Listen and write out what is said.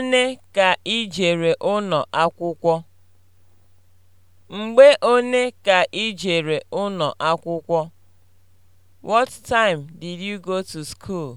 one ka i jere ụnọ akwụkwọ? Mgbe one ka i jere ụnọ akwụkwọ? What time did you go to school?